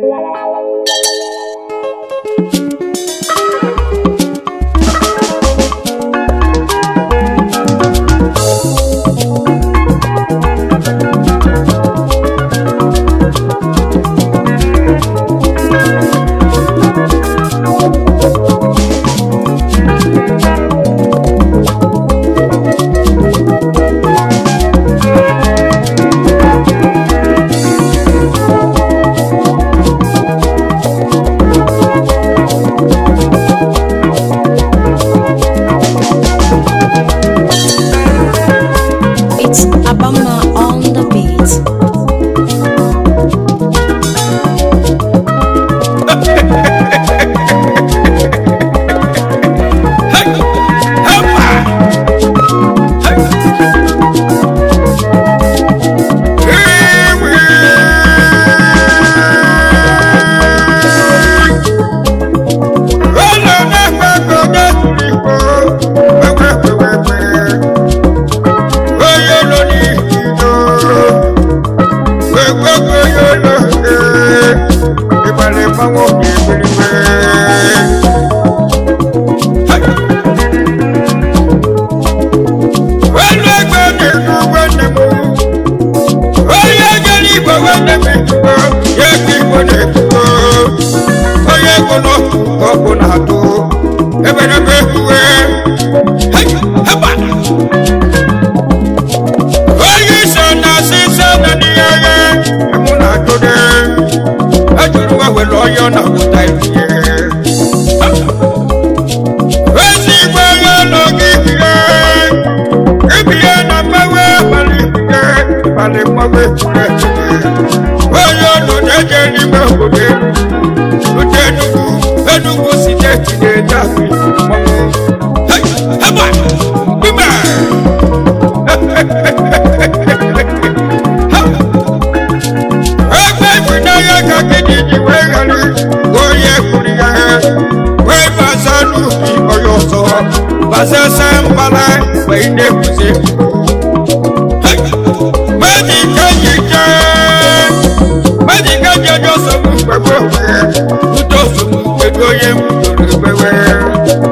Thank you. onye omume chineke onye ọnụ na-eje n'ime obodo elu otu enugwu enugwu steeti na-eje ebe ifunanya ka gịnị ji wee ghara onye kwuru ya onye m toro ekpewe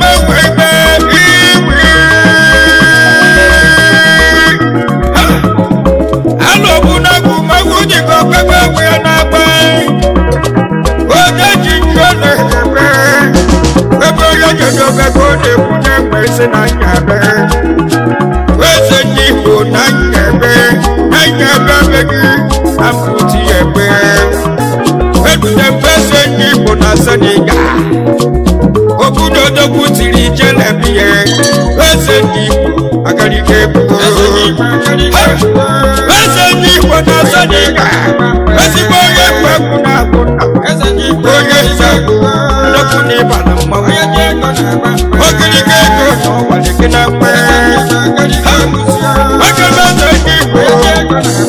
edobe ka ọ na-ekwu na-enwe na nyabe na nyebe na nyabe gị ebe edudebe eze na senegal obodo dogwu tiri jelebie eze ndị igbo agarịga ebuo eze na senegal ezigbo onye egwu na-agụ onye egwu egwu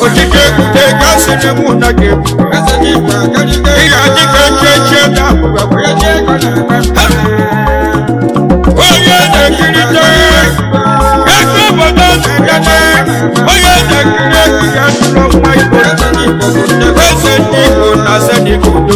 okike ekute ka sịrị mụ na gị ị ga-adị ka nchechi na onye na-ekirita ego obodo na-abịa onye na-ekiri ekiri atụrụ nwa igbo eze ndị igbo na ase dị ka udo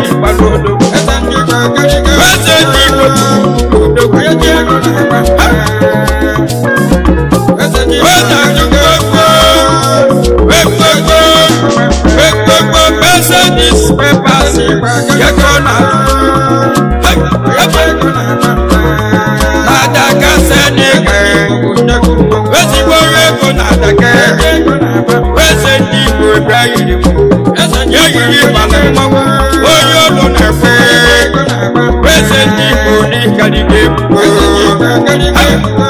eji Hey,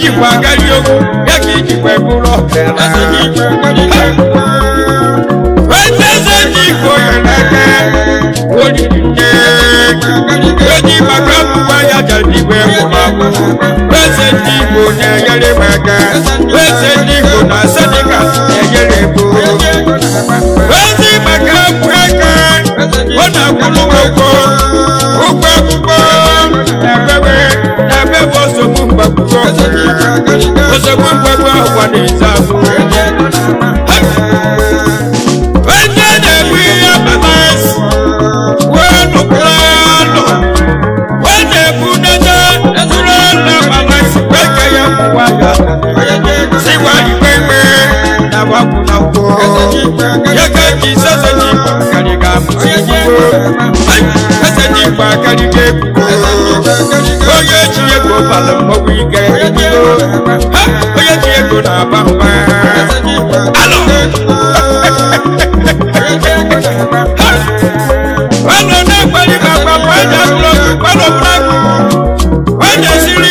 ijikwa agadi okwu ya ka ijikwa bụrụ ọka eze ndị igbo ọzọkwa mgbagba ọkwa na-eze ahụ onye na-egbu na onye ji ego na-aba ụba alụ nwanne na-ekpeli maka nwanyị akụlọkụ kpalọbụrakụ nwanyị esiri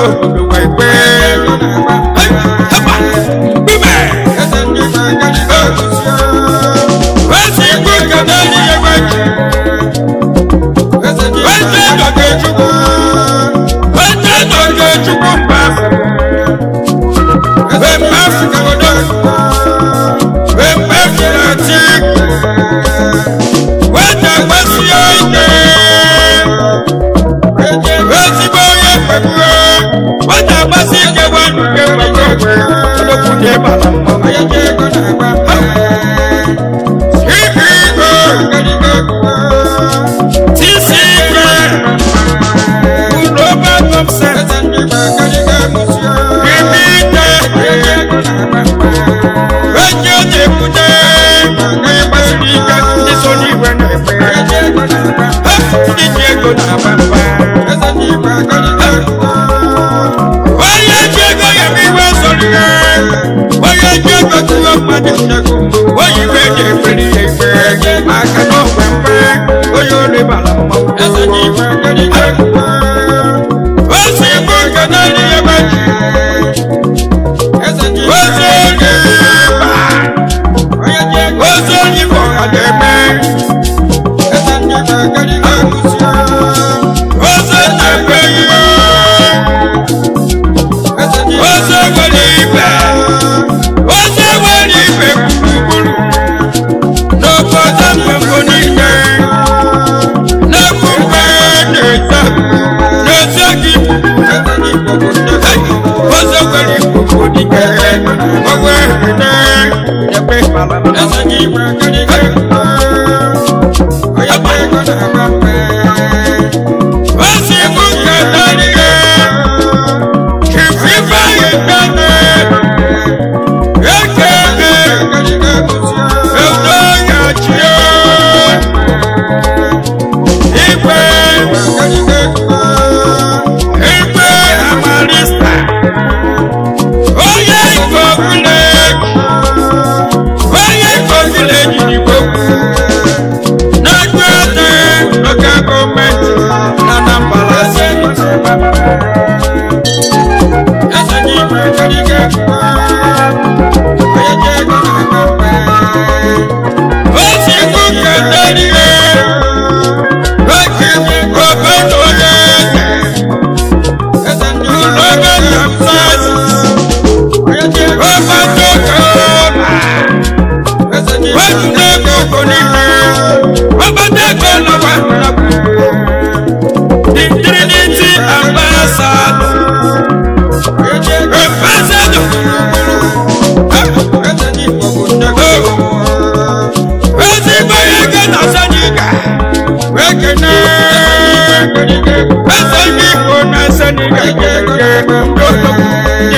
Oh,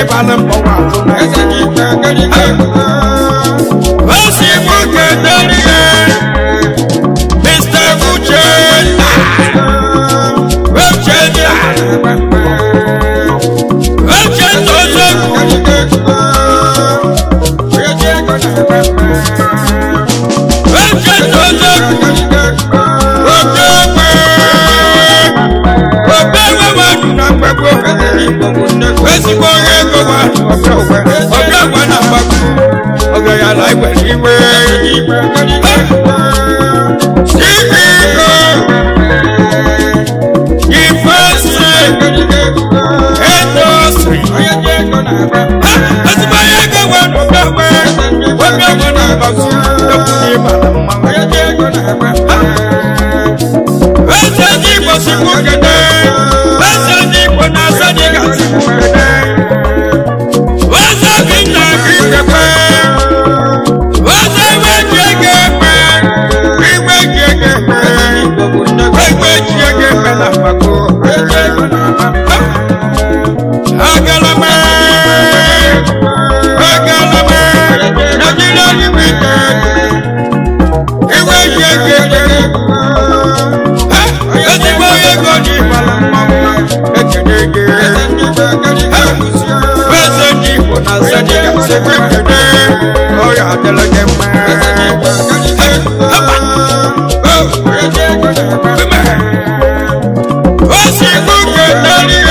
ịbala eji igbo si nwoke si m kele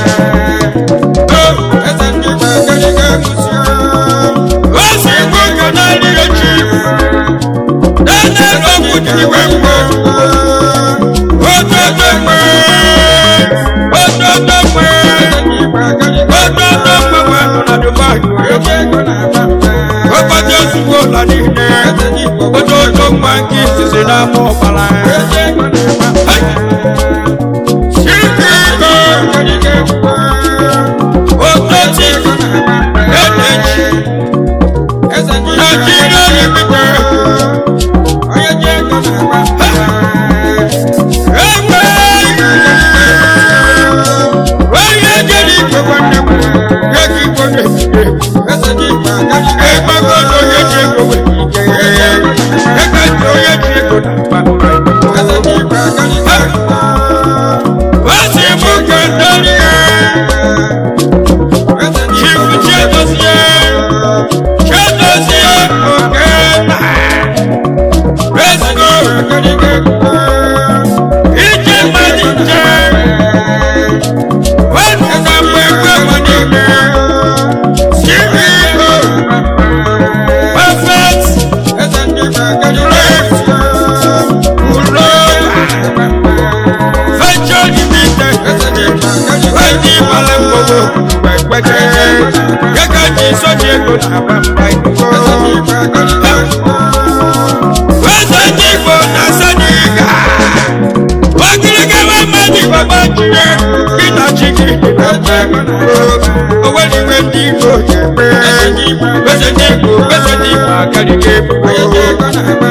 dịka iwe mgbe ododo mgbe ododo mgbe ododo mgbe wee nọ na Dubai ụbọchị ozugbo ụlọ niile ododo nke izizi egbago onye ji egbowe onye ịgbara mgbodo mgbe kpekere ego ndị na-asa n'ịga ogirigara mmadụ ndị igbo